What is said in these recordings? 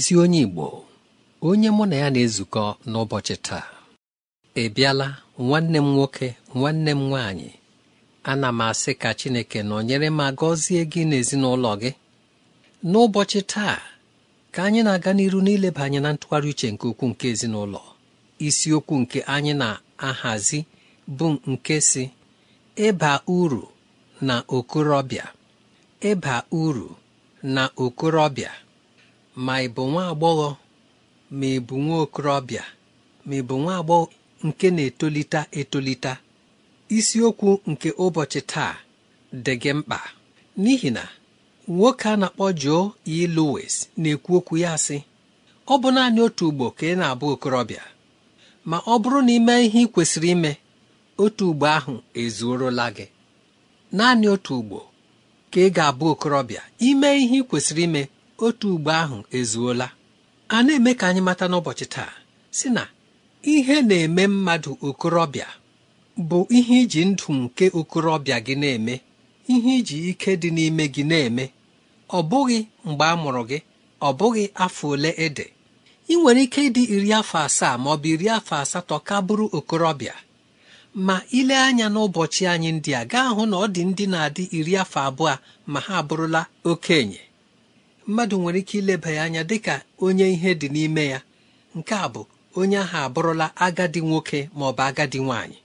ezi onye Igbo onye mụ na ya na-ezukọ n'ụbọchị taa ị bịala nwanne m nwoke nwanne m nwaanyị ana m asị ka Chineke nyere ma gọzie gị n'ezinụlọ gị n'ụbọchị taa ka anyị na-aga n'iru n'ileba anyị na ntụgharị uche nke ukwuu nke ezinụlọ isiokwu nke anyị na-ahazi bụ nke si ịba uru na okorobịa ịba uru na okorobịa ma ị bụ nwa agbọghọ ma ị bụ nwa okorobịa ma ị bụ nwa agbọghọ nke na-etolite etolite isiokwu nke ụbọchị taa dị gị mkpa n'ihi na nwoke a na-akpọ Joe E. Lowes na-ekwu okwu ya sị ọ bụ naanị otu ugbo ka ị na-abụ okorobịa ma ọ bụrụ na ime ihe ị kwesịrị ime otu ugbo ahụ ezuorola gị naanị otu ugbo ka ị ga-abụ okorobịa ime ihe ị kwesịrị ime otu ugbo ahụ ezuola a na-eme ka anyị mata n'ụbọchị taa si na ihe na-eme mmadụ okorobịa bụ ihe iji ndụ nke okorobịa gị na-eme ihe iji ike dị n'ime gị na-eme ọ bụghị mgbe a mụrụ gị ọ bụghị afọ ole ede ị nwere ike ịdị iri afọ asaa ma ọ bụ iri afọ asatọ ka bụrụ okorobịa ma ile anya n'ụbọchị anyị ndị a gaa hụ na ọ dị ndị na-adị iri afọ abụọ ma ha abụrụla okenye mmadụ nwere ike ileba ya anya dịka onye ihe dị n'ime ya nke a bụ onye ahụ abụrụla agadi nwoke ma ọ bụ agadi nwanyị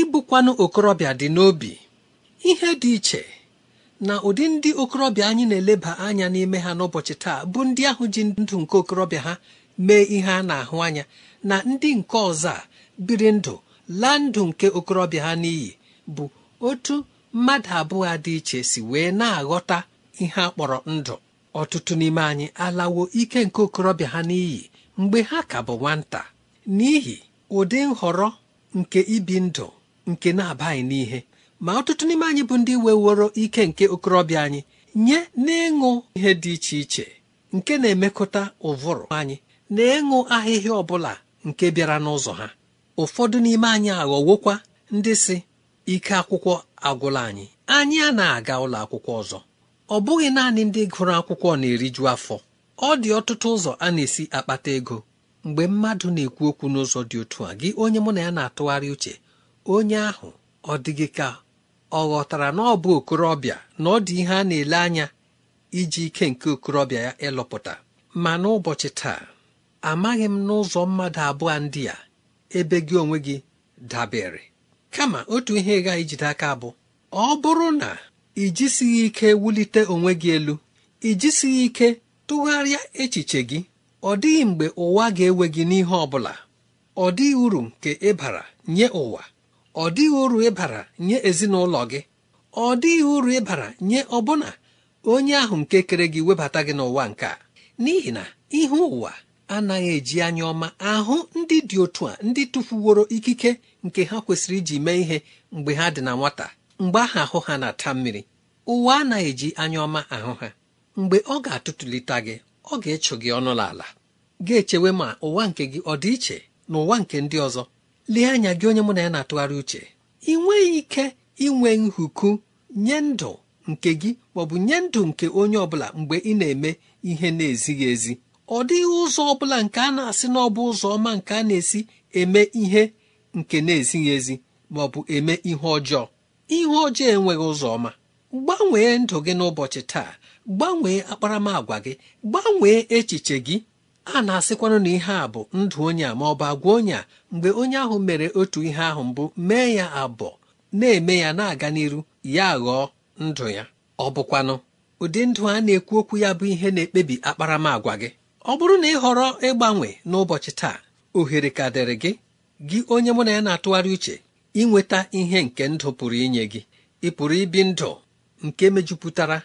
ịbụkwanụ okorobịa dị n'obi ihe dị iche na ụdị ndị okorobịa anyị na-eleba anya n'ime ha n'ụbọchị taa bụ ndị ahụ ji ndụ nke okorobịa ha mee ihe a na-ahụ anya na ndị nke ọzọ a biri ndụ laa ndụ nke okorobịa ha n'iyi bụ otu mmadụ abụọ dị iche si wee na-aghọta ihe a kpọrọ ndụ ọtụtụ n'ime anyị alawo ike nke okorobịa ha n'iyi mgbe ha ka bụ nwata n'ihi ụdị nhọrọ nke ibi ndụ nke na-abaghị n'ihe ma ọtụtụ n'ime anyị bụ ndị weworo ike nke okorobịa anyị nye n'ịṅụ ihe dị iche iche nke na-emekọta ụvụrụ anyị na ịṅụ ahịhịa ọ bụla nke bịara n'ụzọ ha ụfọdụ n'ime anyị aghọwokwa ndị si ike akwụkwọ agwụla anyị anyị a na-aga ụlọ akwụkwọ ọzọ ọ bụghị naanị ndị gụrụ akwụkwọ na-eriju afọ ọ dị ọtụtụ ụzọ a na-esi akpata ego mgbe mmadụ na-ekwu okwu n'ụzọ dị otu a gị onye mụ na ya na-atụgharị uche onye ahụ ọ dịghị ka ọ ghọtara na ọ bụ okorobịa na ọ dị ihe a na-ele anya iji ike nke okorobịa ya ịlụpụta ma n'ụbọchị taa amaghị m n'ụzọ mmadụ abụọ ndị a ebe gị onwe gị dabere kama otu ihe gaghị jide aka bụ ọ bụrụ na i ike wulite onwe gị elu i ike tụgharịa echiche gị ọ dịghị mgbe ụwa ga-ewe gị n'ihe ọ bụla ọ dịghị uru nke ịbara nye ụwa ọ dịghị uru ịbara nye ezinụlọ gị ọ dịghị uru ịbara nye ọbụna onye ahụ nke kere gị webata gị n'ụwa nke a n'ihi na ihe ụwa anaghị eji anya ọma ahụ ndị dị otu a ndị tụfuworo ikike nke ha kwesịrị iji mee ihe mgbe ha dị na nwata mgbe ahụ ahụ ha na-ata mmiri ụwa anaghị eji anya ọma ahụ ha mgbe ọ ga-atụtụlite gị ọ ga-echụ gị ọnụ n'ala ga-echewe ma ụwa nke gị ọ dị iche na ụwa nke ndị ọzọ lee anya gị onye mụ na ya na-atụgharị uche ị nweghị ike inwe nhuku nye ndụ nke gị maọbụ nye ndụ nke onye ọbụla mgbe ị na-eme ihe na-ezighị ezi ọ dịghị ụzọ ọbụla nke a na-asị na ọ bụ ụzọ ọma nke a na-esi eme ihe nke na-ezighị ezi maọbụ eme ihe ọjọọ ihe ọjọọ enweghị ụzọ ọma gbanwee ndụ gị n'ụbọchị taa gbanwee akparamagwa gị gbanwee echiche gị a na-asịkwanụ na ihe a bụ ndụ onye a ma ọ bụ agwa onye a mgbe onye ahụ mere otu ihe ahụ mbụ mee ya abụọ na-eme ya na-aga n'iru ya ghọọ ndụ ya ọ bụkwanụ ụdị ndụ a na-ekwu okwu ya bụ ihe na-ekpebi akparamagwa gị ọ bụrụ na ị họrọ ịgbanwe n'ụbọchị taa ohere ka dịrị gị gị onye mụ na ya na-atụgharị uche inweta ihe nke ndụ pụrụ inye gị ị pụrụ ibi ndụ nke mejupụtara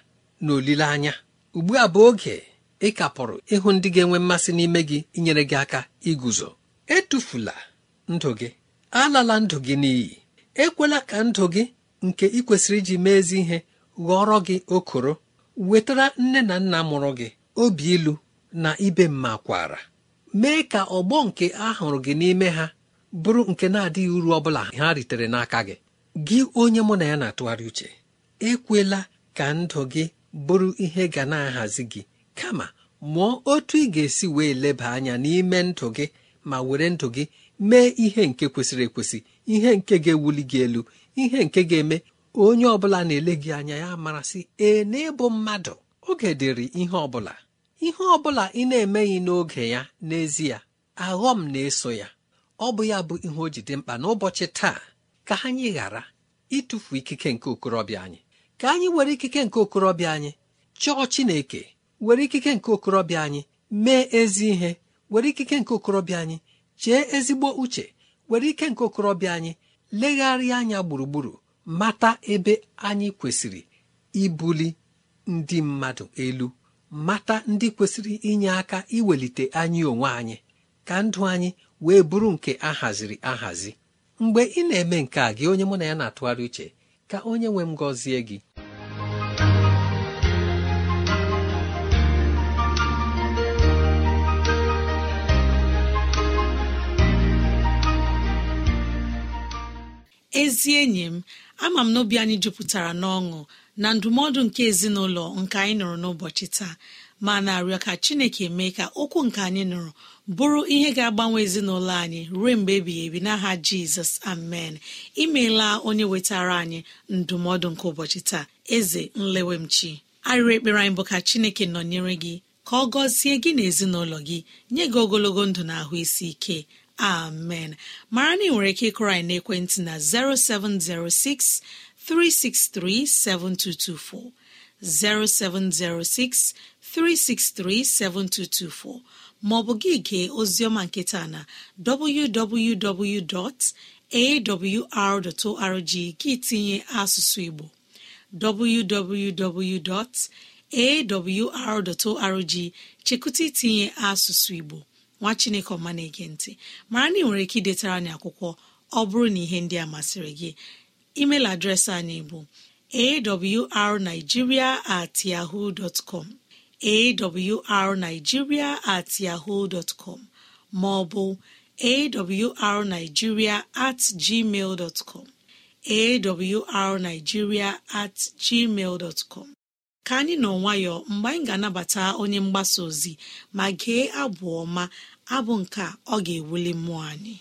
na olileanya ugbu a bụ oge ị kapụrụ ịhụ ndị ga-enwe mmasị n'ime gị inyere gị aka iguzo etufula ndụ gị alala ndụ gị n'iyi ekwela ka ndụ gị nke ị kwesịrị iji mee ihe ghọrọ gị okoro wetara nne na nna mụrụ gị obi ilu na ibe mma kwara mee ka ọgbọ nke a gị n'ime ha bụrụ nke na-adịghị uru ọ bụla ha ritere n'aka gị gị onye mụ na ya na-atụgharị uche ekwela ka ndụ gị bụrụ ihe ga na-ahazi gị kama mụọ otu ị ga-esi wee leba anya n'ime ndụ gị ma were ndụ gị mee ihe nke kwesịrị ekwesị ihe nke ga-ewuli gị elu ihe nke ga-eme onye ọ bụla na-ele gị anya ya marasị ee n'ịbụ mmadụ oge dịrị ihe ọbụla ihe ọbụla ị na-emeghị n'oge ya n'ezie aghọm na-eso ya ọ bụ ya bụ ihe o ji dị mkpa n'ụbọchị taa ka anyị ghara ịtụfu ikike nke okorobịa anyị ka anyị were ikike nke okorobịa anyị chọọ Chineke were ikike nke okorobịa anyị mee ezi ihe were ikike nke okorobịa anyị chee ezigbo uche were ike nke okorobịa anyị legharịa anya gburugburu mata ebe anyị kwesịrị ibuli ndị mmadụ elu mata ndị kwesịrị inye aka iwelite anyị onwe anyị ka ndụ anyị wee bụrụ nke ahaziri ahazi mgbe ị na-eme nke a gị onye mụ na ya na-atụgharị uche ka onye nwe m gọzie gị ezi enyi m ama m n'obi anyị jupụtara n'ọṅụ na ndụmọdụ nke ezinụlọ nke anyị nụrụ n'ụbọchị taa ma na-arịọ ka chineke mee ka okwu nke anyị nụrụ bụrụ ihe ga-agbanwe ezinụlọ anyị ruo mgbe ebighị ebi n'aha jizọs amen imeela onye wetara anyị ndụmọdụ nke ụbọchị taa eze nlewemchi arịrị ekpere anyị bụ ka chineke nọnyere gị ka ọ gọzie gị na ezinụlọ gị nye gị ogologo ndụ na ahụ isi ike amen mara na ị nwere ike ịkụrọ anyị n'ekwentị na 0706 363 7224 0706 363 3637224 maọbụ gị gee oziọma nketa na www.awr.org gị tinye asụsụ Igbo www.awr.org chekụta itinye asụsụ Igbo nwa Chineke ọma na-ege ntị mara na ị nwere ike idetara anyị akwụkwọ ọ bụrụ na ihe ndị a masịrị gị email adreesị anyị bụ awrnigeria at yahoo dot arnigiria at yahoo dot com maọbụ arnigiria at gmail dot com at gmail dot ka anyị nọ nwayọọ mgbe anyị ga-anabata onye mgbasa ozi ma gee abụ ọma abụ nke ọ ga-ewuli mmụọ anyị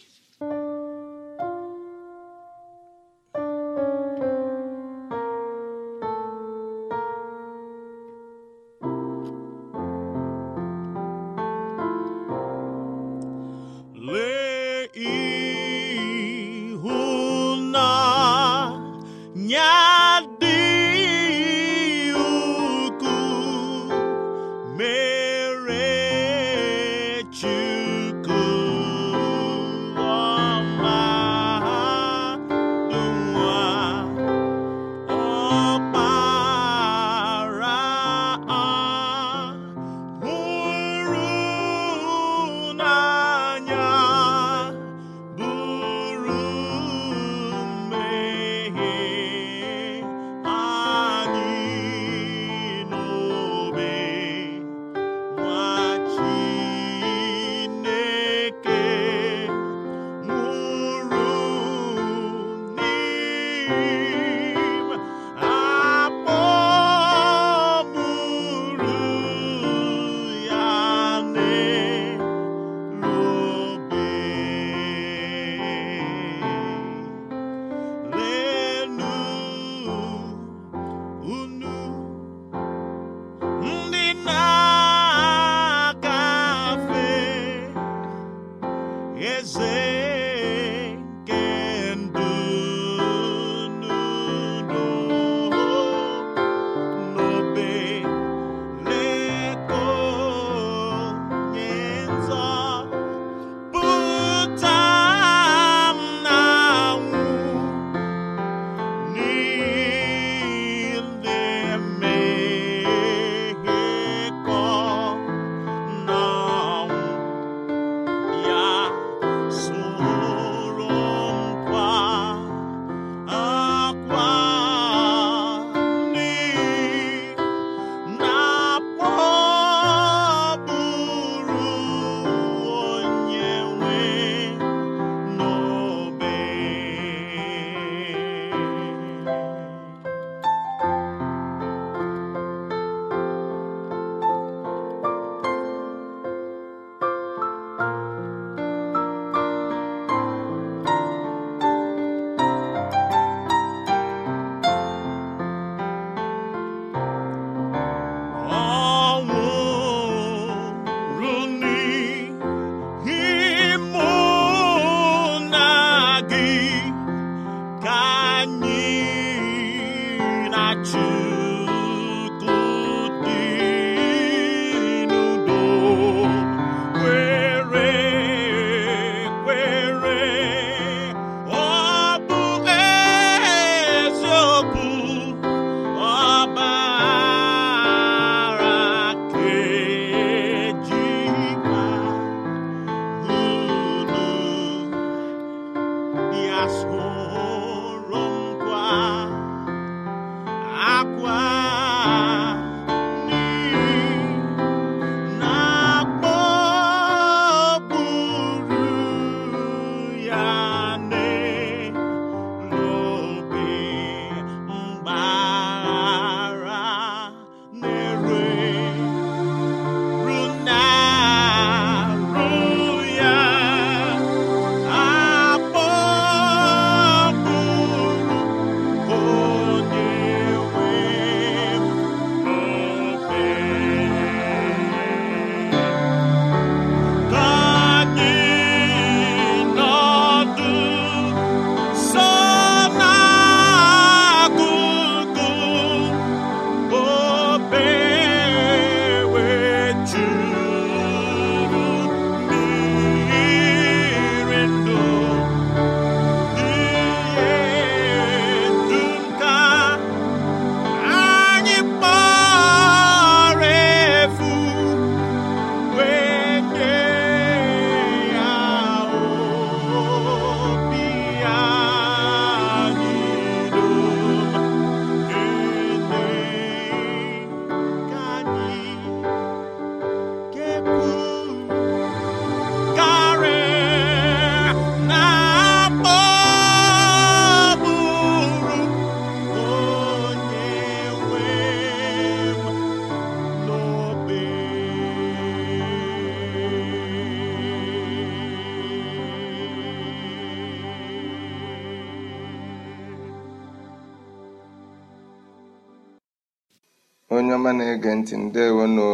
na-ege ntị ndewonụ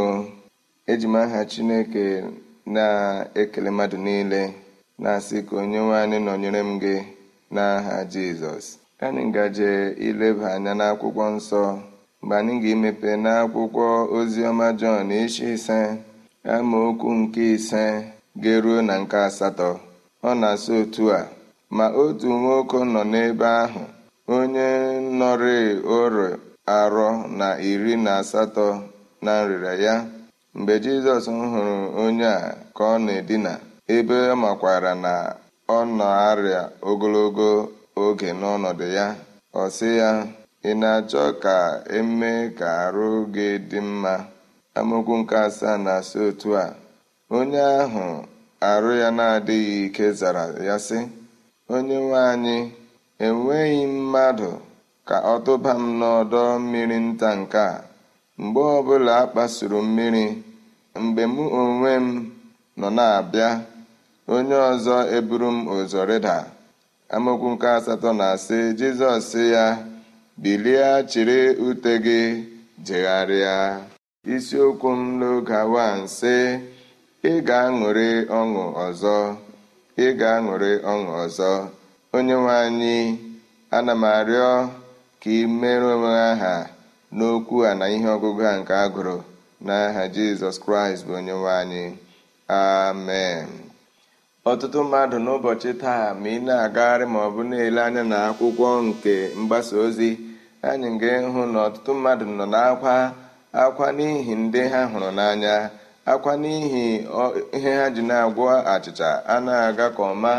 eji m aha chineke na-ekele mmadụ niile na-asị ka onye nwanyị nọnyere m gị n'aha jizọs anyị ngaje ileba anya n'akwụkwọ nsọ mgbe anyị ga-emepe n'akwụkwọ oziọma jọn isi ise amaokwu nke ise ga-eruo na nke asatọ ọ na-asị otu a ma otu nwoke nọ n'ebe ahụ onye nọrị ọrụ arọ na iri na asatọ na nrịrịa ya mgbe jizọs hụrụ onye a ka ọ na-edina ebe ọ makwara na ọ na-arịa ogologo oge n'ọnọdụ ya ọ sị ya ị na-achọ ka emee ka arụ gị dị mma amokwu nke asaa na-asị otu a onye ahụ arụ ya na-adịghị ike zara ya sị onye nwe anyị enweghị mmadụ ka ọ tụba m n'ọdọ mmiri nta nke a mgbe ọbụla a kpasuru mmiri mgbe mụ onwe m nọ na-abịa onye ọzọ eburu m ụzọ rịda nke asatọ na sị jizọs sị ya bilie chịrị ute gị jegharịa isiokwu m n'oge awa sị, ị ga-aṅụrị ọṅụ ọzọ ị ga-aṅụrị ọṅụ ọzọ onye nwe anyị ana m arịọ ka ị merụọ onwe aha n'okwu a na ihe ọgụgụ a nke a gụrụ n'aha jizọs kraịst bụ onye nwe anyị amen ọtụtụ mmadụ n'ụbọchị taa ma ị na-agagharị ma ọ bụ na-ele anya na akwụkwọ nke mgbasa ozi anyị ga-ịhụ na ọtụtụ mmadụ nọ n'akwa akwa n'ihi ndị ha hụrụ n'anya akwa n'ihi ihe ha ji na-agwọ achịcha a na-aga ka ọma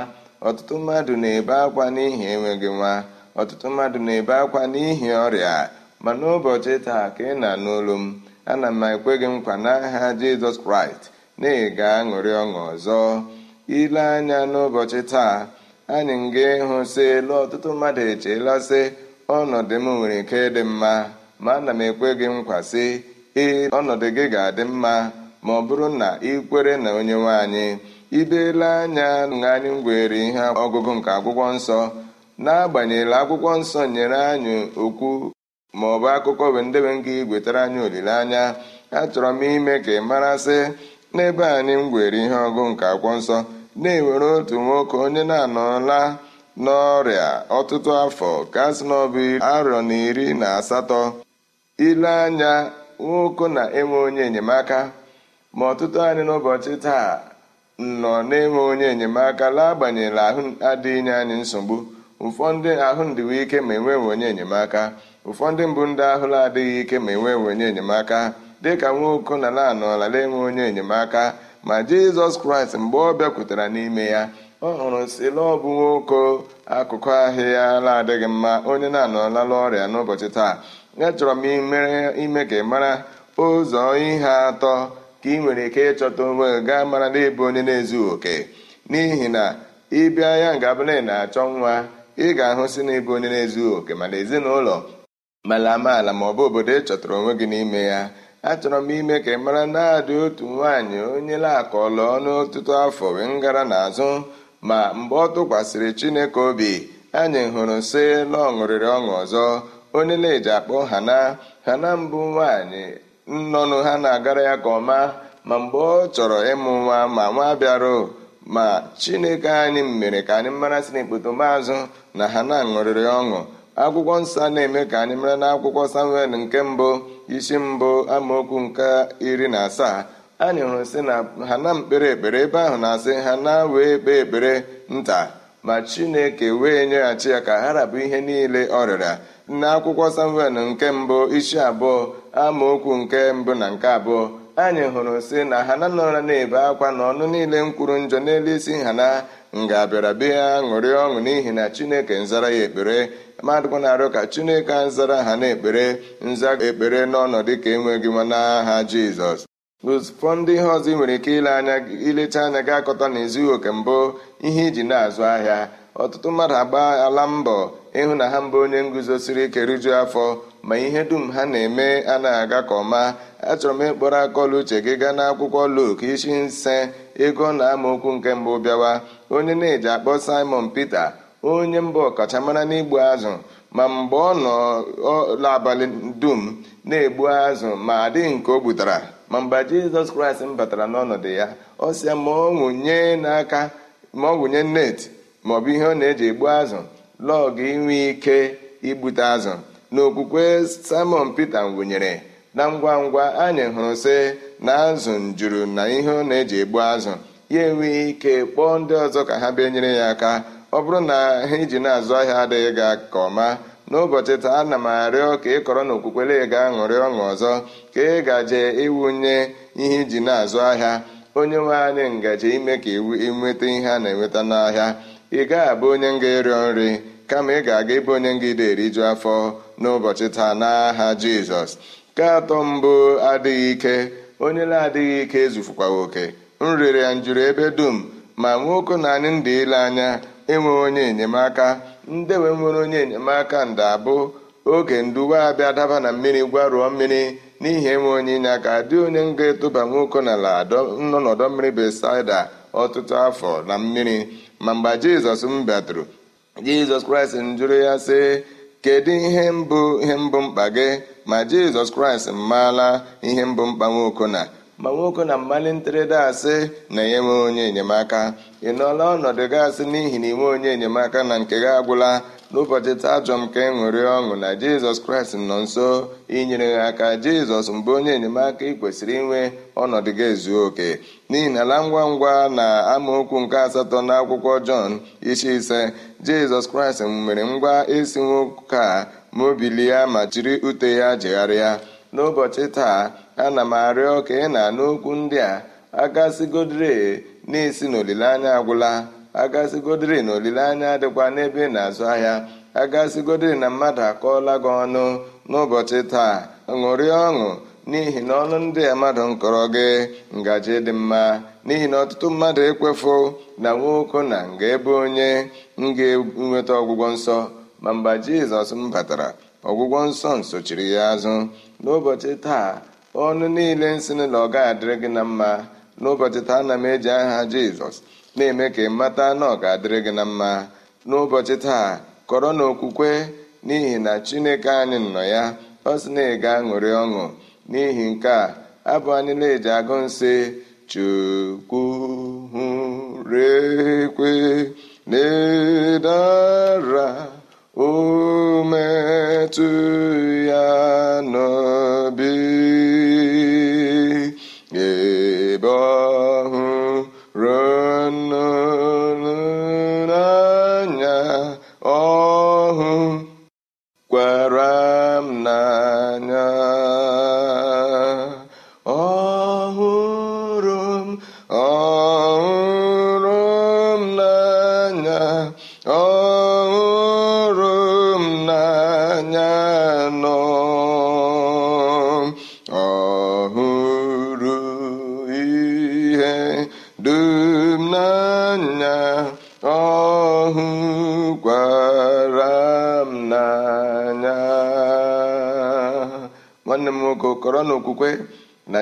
ọtụtụ mmadụ na-ebe akwa n'ihi enweghị nwa ọtụtụ mmadụ na-ebe akwa n'ihi ọrịa ma n'ụbọchị taa ka ị na n'olu m ana m ekwe gị nkwa n'aha jizọs kraịst na ega aṅụrị ọṅụ ọzọ ile anya n'ụbọchị taa anyị nga ịhụ sị elu ọtụtụ mmadụ echeela sị ọnọdụ m nwere ike dị mma ma ana m ekwe gị nkwa sị ee ọnọdụ gị ga-adị mma ma ọ bụrụ na ị kwere na onye nwe anyị ibeela anya na anyị ihe ọgụgụ nke akwụkwọ nsọ n'agbanyeghị akwụkwọ nsọ nyere anyị okwu ma ọ bụ akụkọ bụ ndebe nga igwetara anyị olileanya achọrọ m ime ka ị marasị n'ebe anyị m gwere ihe ọgụ nke akwụkwọ nsọ na-ewere otu nwoke onye na-anọla n'ọrịa ọtụtụ afọ kasị n'ọbụ arọ na iri na asatọ ile anya nwoke na-enwe onye enyemaka ma ọtụtụ anyị n'ụbọchị taa nọ na-enwe onye enyemaka agbanyela ahụ adịghị anyị nsogbu ụfọdụ ahụ ndịwe ike ma enweghị onye enyemaka ụfọdụ mbụ ndị ahụ adịghị ike ma enweghị onye enyemaka dịka nwoke na la na enwe onye enyemaka ma jizọs kraịst mgbe ọ bịakwutere n'ime ya ọ hụrụ sila ọ bụ nwaoko akụkụ ahịa la adịghị mma onye na-anọọlala ọrịa n'ụbọchị taa chọrọ m ime ka ị mara ụzọ ihe atọ ka ị nwere ike ịchọta onwe gaa mara na ịbụ onye na-ezughị oke n'ihi na ịbịa ya na-achọ nwa ị ga-ahụsị na ịbụ onye na-ezughị oke mana ezinụlọ mala amaala ma ọ bụ obodo ị chọtara onwe gị n'ime ya achọrọ m ime ka ị mara na-adị otu nwaanyị onye ọnụ ọtụtụ afọ wee ngara n'azụ ma mgbe ọ tụkwasịrị chineke obi anyị hụrụ si na ọ ṅụrịrị ọṅụ ọzọ onye na-eji akpọ hana na mbụ nwaanyị nnọnụ ha na-agara ya ka ọma ma mgbe ọ chọrọ ịmụ nwa ma nwa bịara ma chineke anyị mere ka anyị mara si n'ekpotomazụ na ha na-aṅụrịrị ọṅụ akwụkwọ nsọ na-eme ka anyị mara na akwụkwọ samuel nke mbụ isi mbụ amaokwu nke iri na asaa anyị hụrụ sị na ha na mkpere ekpere ebe ahụ na-asị ha na wee kpee ekpere nta ma chineke wee nyeghachi ya ka ha rabụ ihe niile ọ rịara akwụkwọ samuel nke mbụ isi abụọ amaokwu nke mbụ na nke abụọ anyị hụrụ si na ha na nọra na-ebe akwa na ọnụ niile mkwuru njọ n'elu isi ha na nga bịara bịa ṅụrịa ọṅụ n'ihi na chineke nzara ya ekpere mmadụ na-arịọ ka chineke nzara ha na-ekpere nza ekpere n'ọnọdụ ka enweghị nwa n'aha jizọs ụfọ ndị ihe ọzọ ị nwere ike ile anya ilecha anya gị akọta na oke mbụ ihe iji na-azụ ahịa ọtụtụ mmadụ agba ala mbọ ịhụ na ha mbụ onye nguzosiri ike rijuo afọ ma ihe dum ha na-eme a na aga ka ọma achọrọ m ịkpọrọ akọla uche gị gaa n'akwụkwọ Luk isi nse ego na amaokwu nke mbụ bịawa onye na-eji akpọ Simon Peter onye mbụ ọkachamara n'igbu azụ ma mgbe ọ nọ n'abalị dum na-egbu azụ ma adịghị nke o gbutara ma mgbe jizọs kraịst m batara n'ọnọdụ ya ọ sị ya ma ọ n'aka ma ọ wụnye net maọbụ ihe ọ na-eji egbu azụ lọgụ inwe ike igbute azụ n'okwukwe okwukwe simon pete wụnyere na ngwa ngwa anyị hụrụ sị na azụ njuru na ihe ọ na-eji egbu azụ ya enweghị ike kpọọ ndị ọzọ ka ha bịa nyere ya aka ọ bụrụ na ha iji na-azụ ahịa adịghị ga ka ọma n'ụbọchị taa ana m arịọ ka ị kọrọ na okwukwere ga-aṅụrị ọṅụ ọzọ ka ị gaje ịwụnye ihe iji na-azụ ahịa onye nwe anyị ngaji ime ka ịnweta ihe a na-enweta n'ahịa ị gaghị abụ onye nga ịrịọ nri kama ị ga-aga ebe onye nga ide eriju afọ n'ụbọchị taa n'aha jizọs nke atọ mbụ adịghị ike onye na-adịghị ike ezufukwa oke nrịrị njụrụ ebe dum ma nwoke na anyị ndị ile anya enwe onye enyemaka ndewe nwere onye enyemaka nda abụ oge nduwe abịa daba na mmiri gwarụọ mmiri n'ihi enwe onye inye aka dị onye nga etụba nwoke n'ala nọ n'ọdọ mmiri besaida ọtụtụ afọ na mmiri ma mgbe jizọs m bịatụrụ jizọs kraịst njụrụ ya sị kedu ihe mbụ ihe mbụ mkpa gị ma jizọs kraịst maala ihe mbụ mkpa nwaokona ma na mmalị ntịrịda asị na ya enwe onye enyemaka ị nọọla ọnọdụ gị asị n'ihi na inwe onye enyemaka na nke gị agwụla n'ụbọchị taa ajọ m ka e ọṅụ na jizọs kraịst nọ nso inyere ha aka jizọs mbụ onye enyemaka ị kwesịrị inwe ọnọdụ gị ezuo oke n'ihi na ala ngwa ngwa na amaokwu nke asatọ na akwụkwọ jọn isi ise jizọs kraịst mere ngwa esi nwoke a mobilie ma jiri ute ya jegharịa n'ụbọchị taa ana m arịọ ka ị na-anụ okwu ndị a agasigodre na-esi n'olileanya agwụla agasigodre na olileanya dịkwa n'ebe na-azụ ahịa agasigodre na mmadụ akọọla gị ọnụ n'ụbọchị taa ṅụrịa ọṅụ n'ihi na ọnụ ndị a mmadụ nkọrọ gị ngaji dị mma n'ihi na ọtụtụ mmadụ ekwefu na nwoke na nga ebe onye m ga-enweta ọgwụgwọ nsọ ma mgbe jizọs m batara ọgwụgwọ nsọ nsochiri ya azụ n'ụbọchị taa ọnụ niile nsị na ọ adịrị gị na mma n'ụbọchị taa ana m eji aha jizọs na-eme ka ị mata na ọ ga-adịrị gị na mma n'ụbọchị taa kọrọ na okwukwe n'ihi na chineke anyị nọ ya ọ sị na ị ga-aṅụrị ọṅụ n'ihi nke a abụ anyị na-eji agụ nsị chukwu hụrekwe na-edara ya n'obi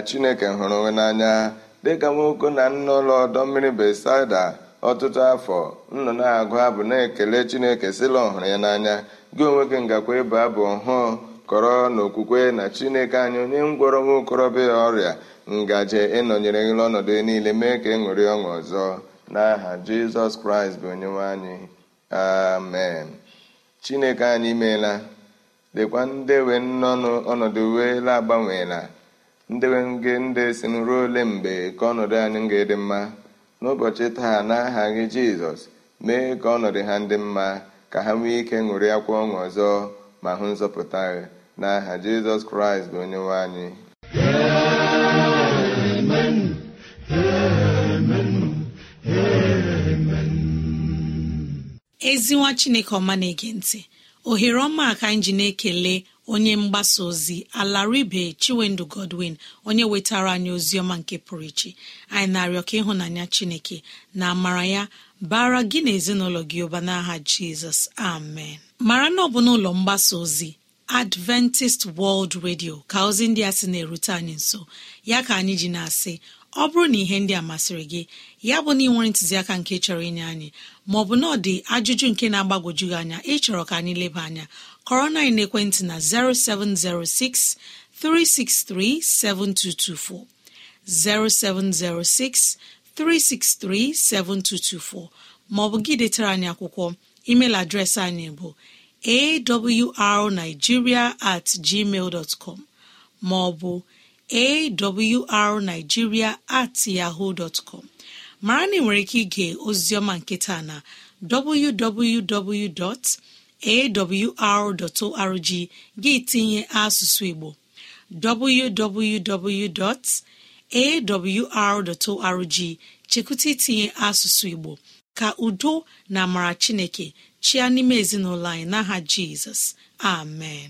chineke hụrụ onwe n'anya dịka nwoke na nna ụlọ ọdọ mmiri besaida ọtụtụ afọ nnọ na-agụ abụ na-ekele chineke sịla ọhụrụ ya n'anya gị onwe gị ngakwa ịbụ abụ ọhụụ kọrọ n'okwukwe na chineke anyị onye ngwọrọ nwa okorobịa ọrịa ngaji ịnọnyere gị ọnọdụ niile mee ka e ṅụrị ọṅụ ọzọ n'aha jizọs kraịst bụ onyenwe anyị amen chineke anyị meela dịkwa ndewe nnọnụ ọnọdụ wee la agbanweela ndị ndị si ruo ole mgbe ka ọnọdụ anyị ga-adị mma n'ụbọchị taa n'aha gị jizọs mee ka ọnọdụ ha ndị mma ka ha nwee ike ṅụrị akwa ọṅụ ọzọ ma hụ nzọpụta gị n'aha jizọs kraịst bụ onye nwe anyị ezinwa chineke ọma na-ege ntị ohere ọma ka anyị ji na-ekele onye mgbasa ozi alaribe chiwendu godwin onye wetara anyị ozi ọma nke pụrụ iche anyị na-arịọ ka ịhụnanya chineke na amara ya bara gị na ezinụlọ gị ụba n'aha jizọs amen mara na ọ bụ n'ụlọ mgbasa ozi adventist world radio ka ozi ndị a sị na-erute anyị nso ya ka anyị ji na-asị ọ bụrụ na ihe ndị a masịrị gị ya bụ na ị nwere ntụziaka nke chọrọ inye anyị maọbụ na ọ dị ajụjụ nke na-agbagwoju gị anya ịchọrọ ka anyị leba anya kọrọ na na 0706 363 7224, 0706 363 7224 maọbụ gị detara anyị akwụkwọ email adreesị anyị bụ awrnigeria at gmail dot com maọbụ awrnigeria at yahoo dot com mara na ị nwere ike ige oziọma nketa na www. awr.org gị tinye asụsụ Igbo www.awr.org chekwụta itinye asụsụ Igbo ka udo na amara Chineke chịa n'ime ezinụlọ anyị n'aha Jizọs amen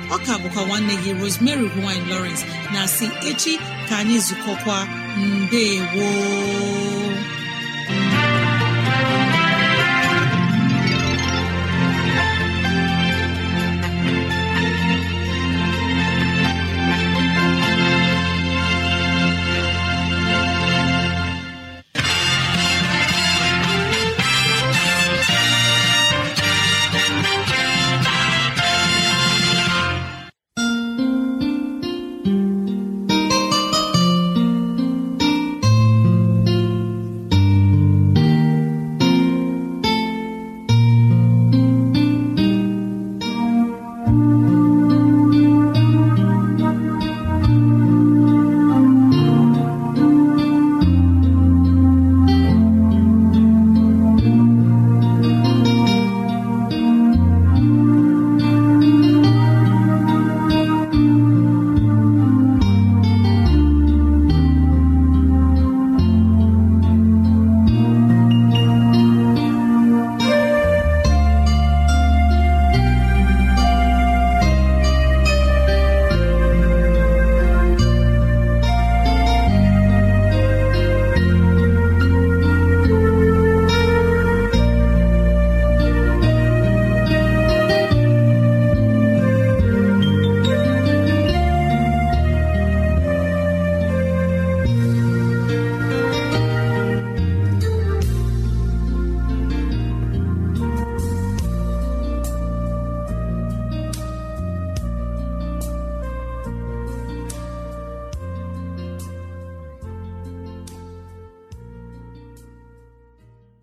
ọ ka bụkwa nwanne gị Rosemary gine Lawrence na si echi ka anyị zukọkwa mbe gboo